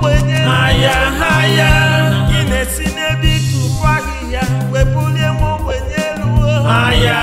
ogbenye n'ahịa na-esi n'ebe ịtụpụ ahịhịa wepụlie m ya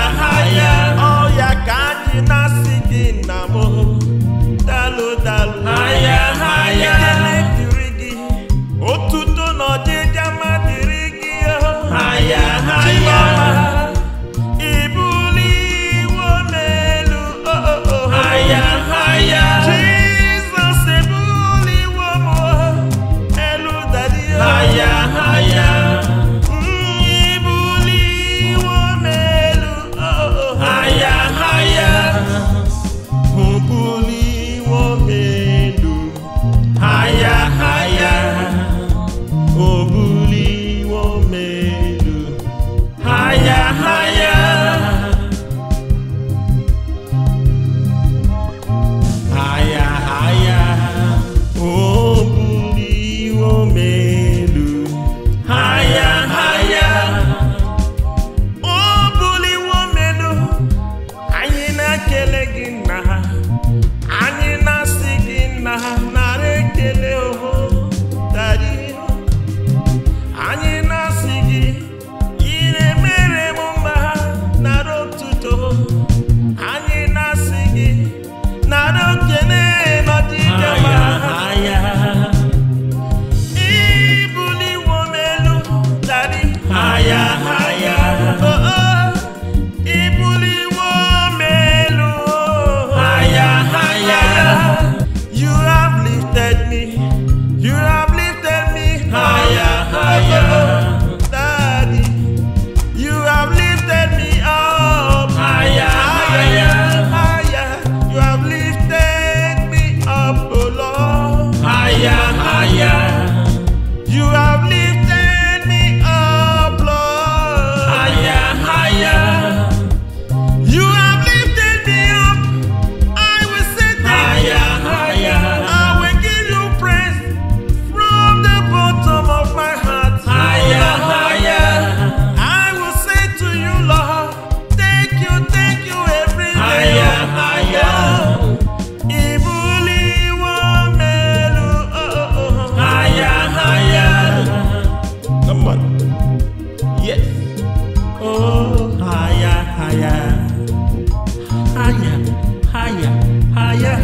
higher, higher,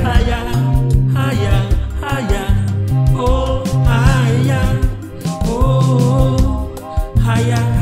higher, higher, oh oh